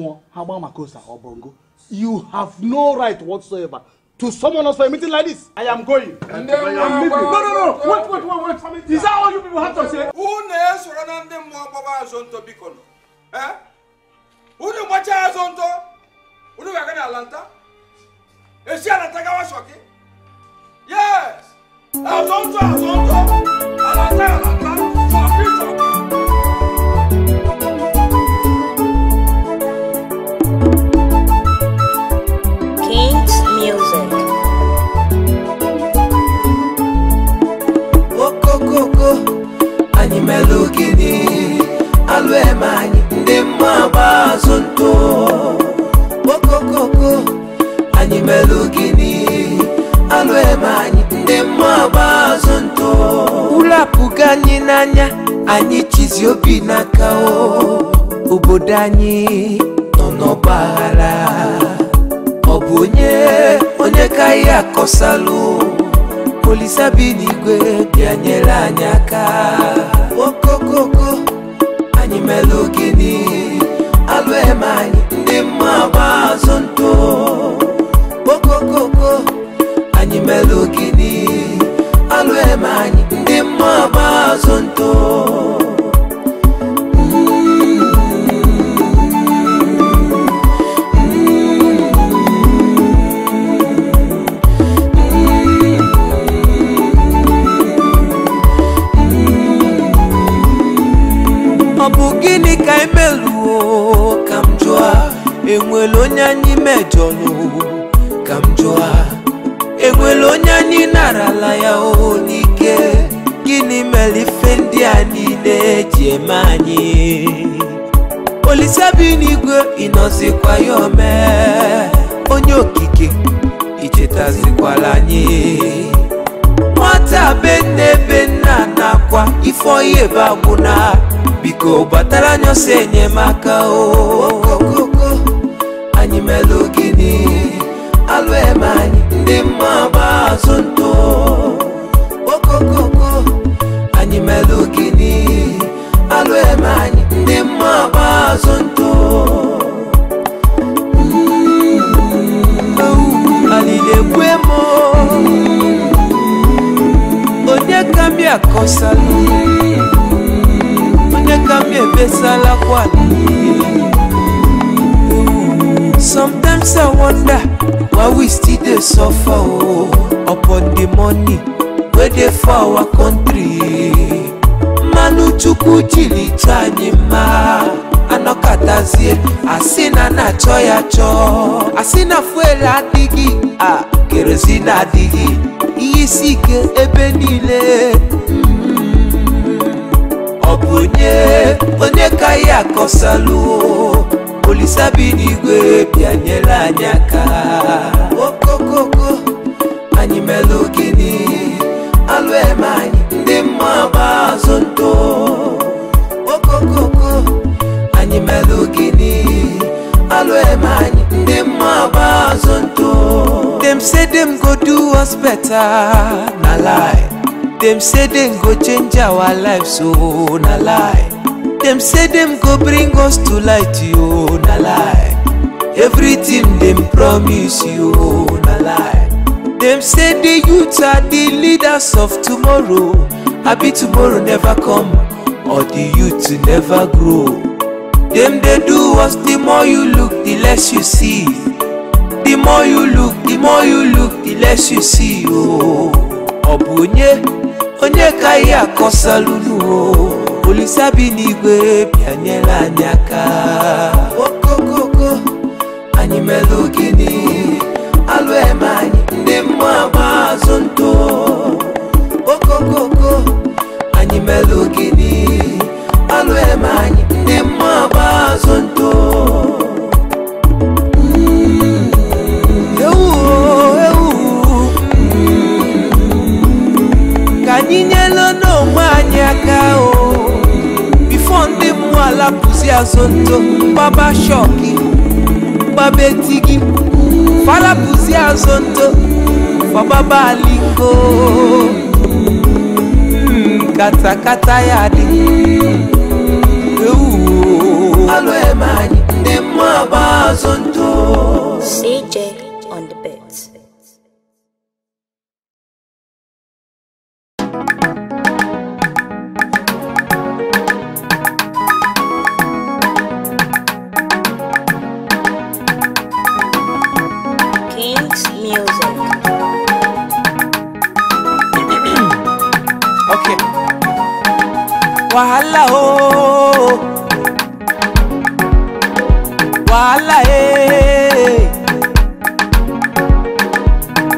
mmụọ ha gbaa maka ose ọbọngo you have no right whatsoever to summon us for a meeting like this. I am going. And then we are No, no, no. Wait, wait, wait, wait. Is that all you people have to say? Unu esoro na ndị mmụọ gbaba azụ ntọ biko nọ. Eh? Unu gbachaa azụ ntọ. Unu ga-aga na Atlanta. Esi Atlanta gawa Shọki. Yes. Azụ ntọ, azụ ntọ. Atlanta, Atlanta. ngo animelukini alwemanyi ndi mabazo nto okokoko animelukini alwemanyi ndi mabazo nto ulapuka nyi nanya anyi chizi obinakao ubodanyi nonobala obunye onyekai yakosalu no, olisa bi n'igwe bịa nyere anyị aka okokoko anyị mere ogini alụ eme anyị ndị mma gba azụ ntụ okokoko anyị mere ogini alụ ndị mma gba azụ ntụ emeluo ka m jụa enwere onye anyị mejọrọ ka m jụa enwere onye anyị narala ya o n'ike gịnị mere ife ndị a niile eji eme anyị olisabi n'igwe ịnọzikwa ya ome onye okike ichetazikwala anyị nwata be nne nna nakwa ife ebe agwụna biko batala se niema oh. suffer oh, upon the money wey dey for our country. Manuchukwu jilita anyị mma anọkatazie asị na na-achọ ya chọọ asị na fuel adịghị a kerozin adịghị ihe isi ike ebe niile mm-hmm. ọ bụ onye onye ka ya akọsalụ olisabi n'igwe bịanyere anyị aka thousand dollars. Them say them go do us better, na lie. Them say them go change our life, so oh, na lie. Them say them go bring us to light, yo, oh, na lie. Everything them promise you, oh, na lie. Them say the youth are the leaders of tomorrow. Happy tomorrow never come, or the youth never grow. Them they do us, the more you look, the less you see the more you look the more you look the less you see Oh, ọ onye onye ka ihe akọsalụnu o oh. olise bi n'igwe bịanyela anyị aka okokoko anyị mere Kusia Zoto, Baba Shoki, Babe Tigi, Fala Kusia Zoto, Baba Baliko, Kata Kata Yadi, Alo Emani, Demo Abazonto, CJ. wàhálà o wàhálà ee eh, eh, eh.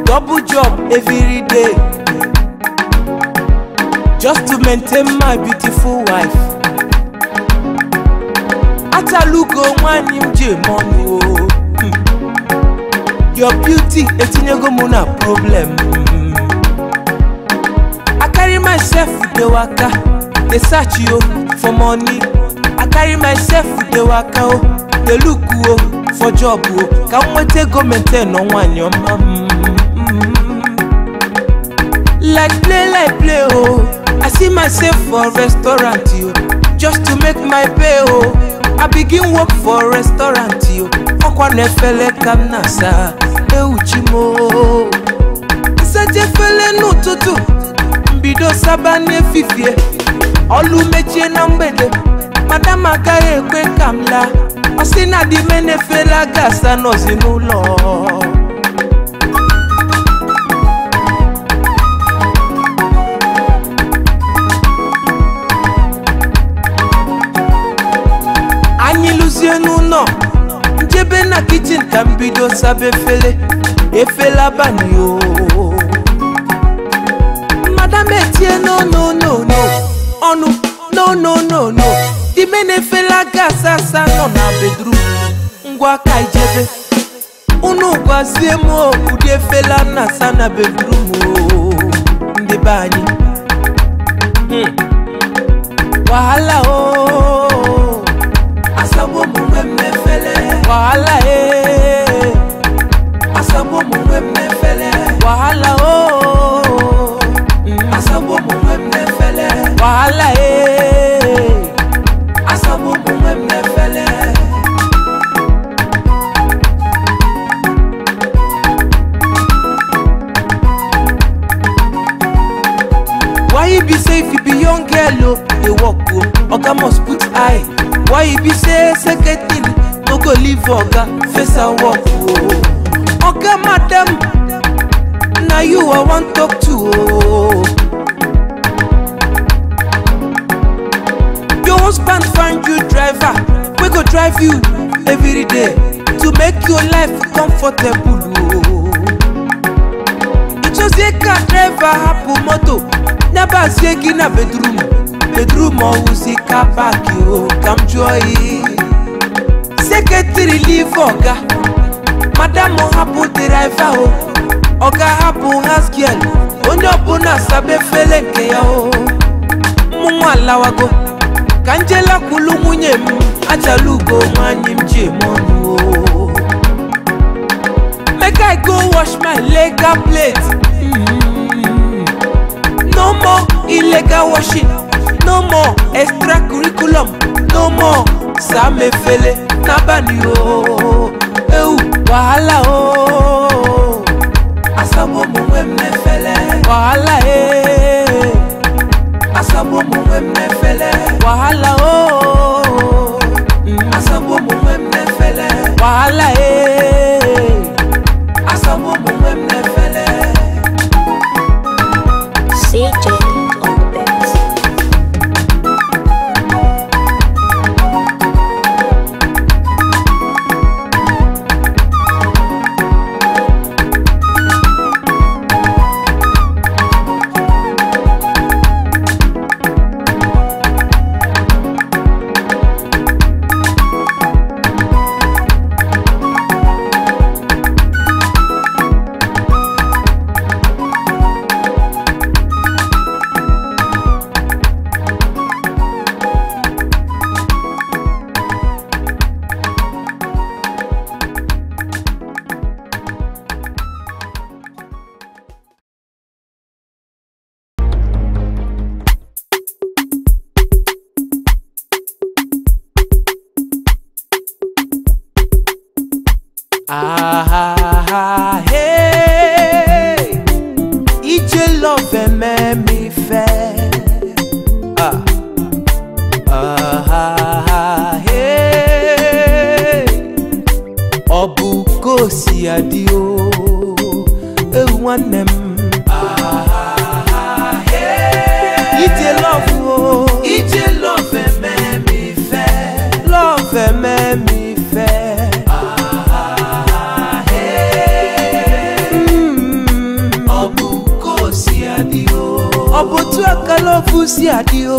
double job every day just to maintain my beautiful wife atalugo nwanyị m ji mọnụ o hmm. your beauty etinyego m na problem hmm. I carry myself dey waka. dey search yo for money i carry myself with the waka o dey look o for job o ka nweta ego maintain ọnwanyị ọma like play like play o i see myself for restaurant o just to make my pay o i begin work for restaurant o ọkwa na efele ka m na-asa ewuchi m o nsacha efele n'ụtụtụ mbido saba n'efifie ọlụ mechie na mgbede madam agaghị ekwe ka m laa ọ sị na di me na-efela gasa nọzi n'ụlọ anyị lụzie n'ụlọ njebe na kichin ka m bido saba efere efela bani Di na-efela gasị asaa nọ na bedru, ngwa ka ijebe unu gwazie m ụdị efela na asa na bedrum ndị be anyị hmm. wahala o asabu omume mmefele wahala e asabu omume mmefele wahala o hmm. asabu omume mmefele wahala e be say if you be young girl o oh. dey work o oh. oga must put eye why you be say second thing no go leave oga face and work o oh. oga madam now you i want talk to o. your husband find you driver we go drive you every day to make your life comfortable o. ìtúnṣe ká driver hapò mọ́tò never swegi na bedroom bedroom ọwụsika paki o oh, ka m jụọ ihe seketiri live ọga madam hapụ deraiva o oh. ọga hapụ hasgiel onye ọbụla saba efele nke ya o oh. mụnwa alawago ka njela kwulu nwunye m ajala ugo nwanyị m ji eme ọnụ o make i go wash my leg plate mm -hmm. No more illegal washing, no more extra curriculum. no more Samefele nabani o, ewu wahala o. Asamu omuwe wahala eh. ee. Asamu omuwe mmefele. wahala o. Asamu omuwe mmefele. Wàhálà ee. Asamu omuwe mmefele. Ah, hey. Ije love ememi fe. Ah, ah, ah, hey. Obu kosi adio. Ewanem love si adio.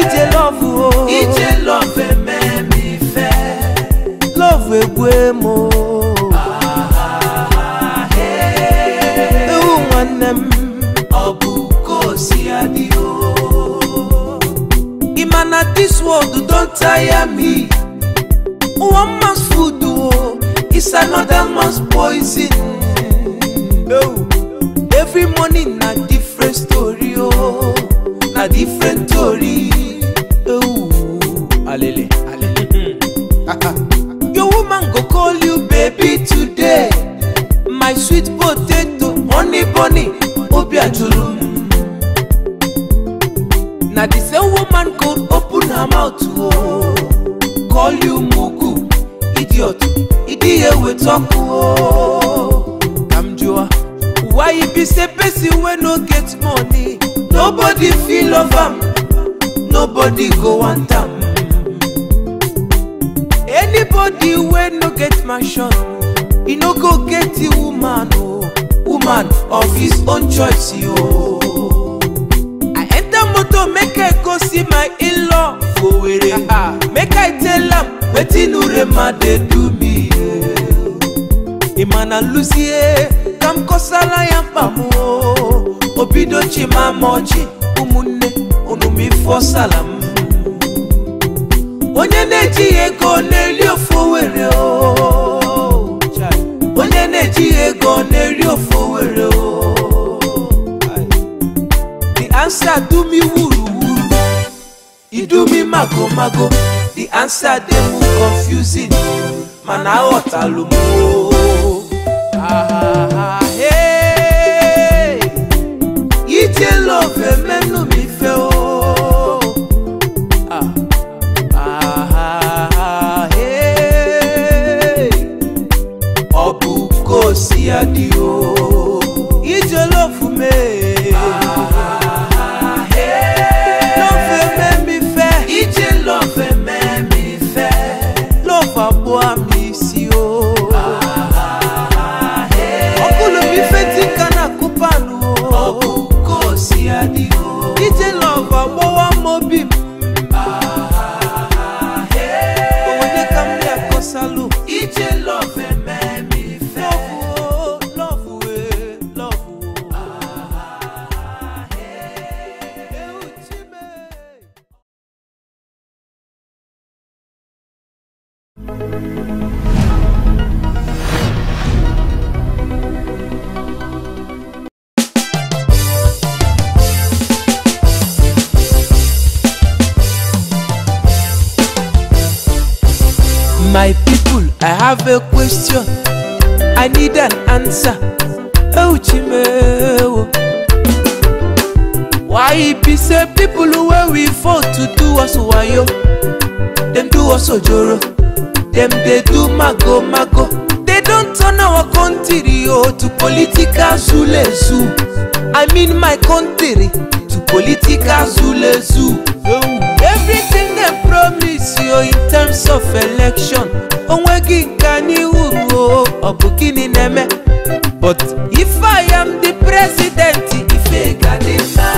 Ije love o. Ije love ẹ̀mẹ́ mi fẹ́. Love egwe mo. Ewu nwanne m. Ọ bụ ko si adio. Ima na this world don tire me. One man's food o is another man's poison. Oh every morning na different story o oh, na different story ewu oh, alele alele. your woman go call you baby today my sweet potato honey bunny obi ajuru. na the same woman go open her mouth o oh, call you mugu idiot idiyewe talk o. Oh be say person wey no get money nobody fit love am nobody go want am anybody wey no get mansion e no go get the woman o oh. woman of his own choice o. Oh. i enter motor make i go see my in-law for were make i tell am wetin urema dey do me. emana eh? lucie eh, kamkosala mama o Obidochi mama oji umunne onumifo salam onye na-ejighị ego na-eri ofu were onye na-ejighị ego na-eri ofu were the answer do me wuru wuru idu mi mago mago the answer dem mu confusing mana aghọtalụ m o daddy your love for me. Ah, hey. me me fair. It's your love me me fair. Love a boy me see oh. Ah, hey. Okulo mi fẹ́ ti kana kupanu oh. Okuko si adi oh. It's your love a boy mo bi. have a question, I need an answer. Oh, Chimeo. Why it be say people who where we fall to do us wayo? Them do us ojoro. Them they do mago mago. They don't turn our country oh, to political zule zoo. I mean my country to political zule zoo. everything promise you in terms of election onweghị nke anyị uru ọ bụ gịnị na-eme but if I am the president ife ga dị mma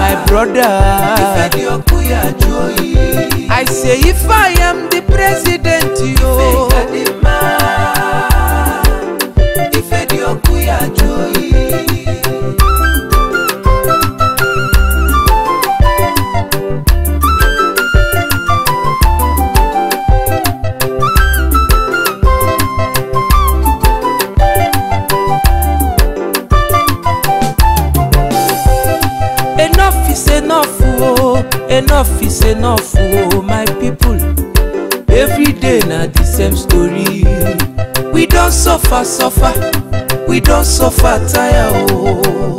my brother ife dị ọkụ ya jụọ oyi I say if I am the suffer we don't suffer tire ooo oh.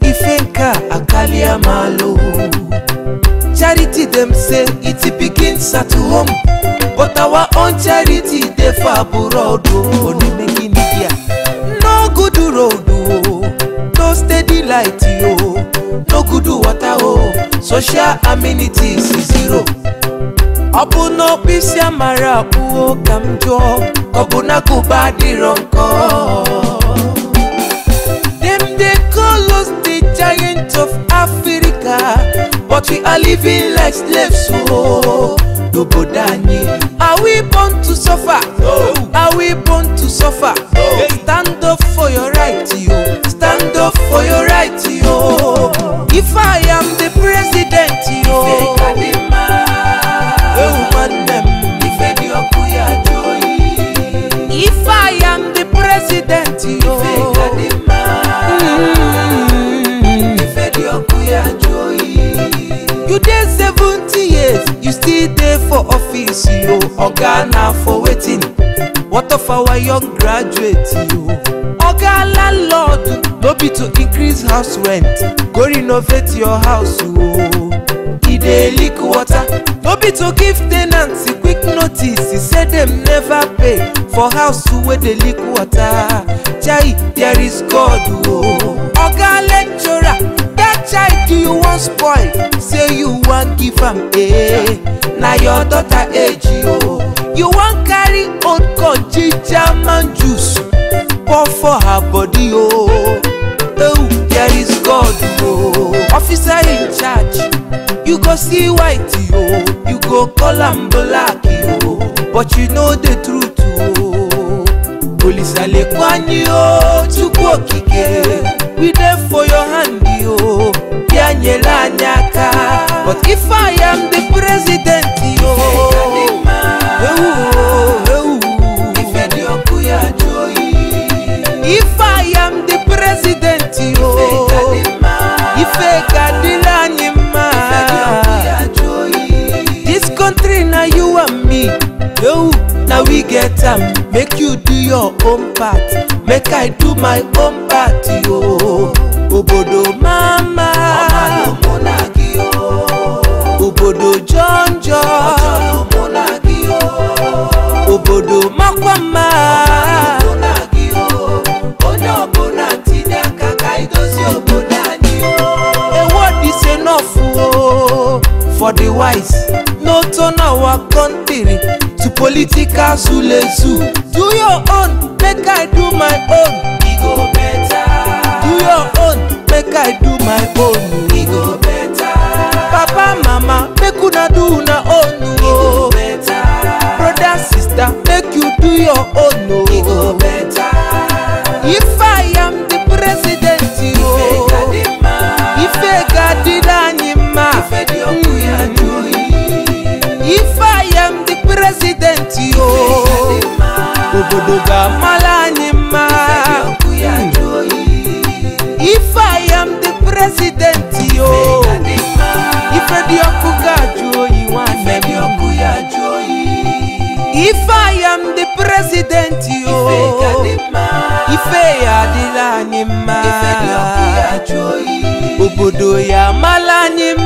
ifenka akaliamalo charity them say it begin start to home but our own charity dey for abroad ooo oh. no good road ooo oh. no steady light ooo no good water ooo social amenities zero ọ bụ n'ọkpịsị amara akpụwo ka m jụọ ọ bụ n'agụba adịrọ nkọ dem dey call us the giant of africa but we are living like slaves o oh. n'obodo anyị are we born to suffer no. are we born to suffer no. stand up for your right o. for waiting what of our young graduate yo. oga landlord no be to increase house rent go renovate your house o e dey leak water no be to give tenants ants quick notice e say them never pay for house where they leak water chai there is god Oh, oga lecturer that child you wan spoil say you want give him a, now your daughter age o you wan carry old corn ginger man juice pour for her body o oh. oh there is God o oh. officer in charge you go see white o oh. you go call am black o oh. but you know the truth o oh. Olisalegun Anyi o Chukwu Okike oh, we dey for your hand o oh. Bianyela anyị aka but if I am the president. president o ife gadila ni ma this country na you and me yo na we get am make you do your own part make i do my own part yo obodo mama obodo jọnjọ obodo makwama. for the wise no turn our country to political zulezu do your own make i do my own Bugamala Nima. If I am the president, yo. If I am the president, Joyi If I am the president, yo. If I Adila Nima. Obodo Yamala Nima.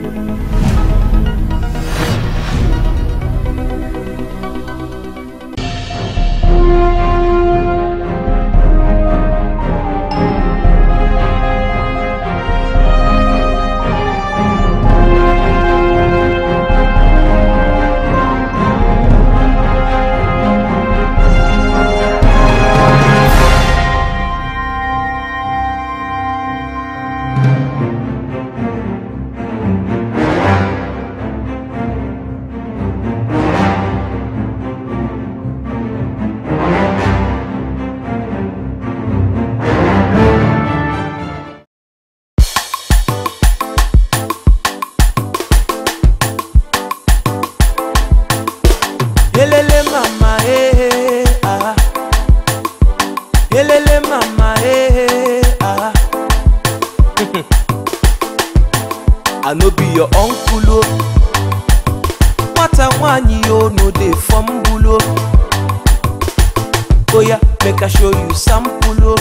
oya make i show you sample oh.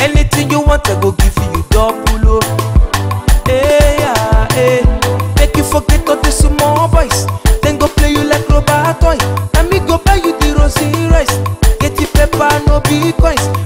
anything you want i go give you double oh. Hey eh, Yeah, hey, eh. make you forget all the small boys Then go play you like robot toy na me go buy you the rosy rice get the pepper no be coins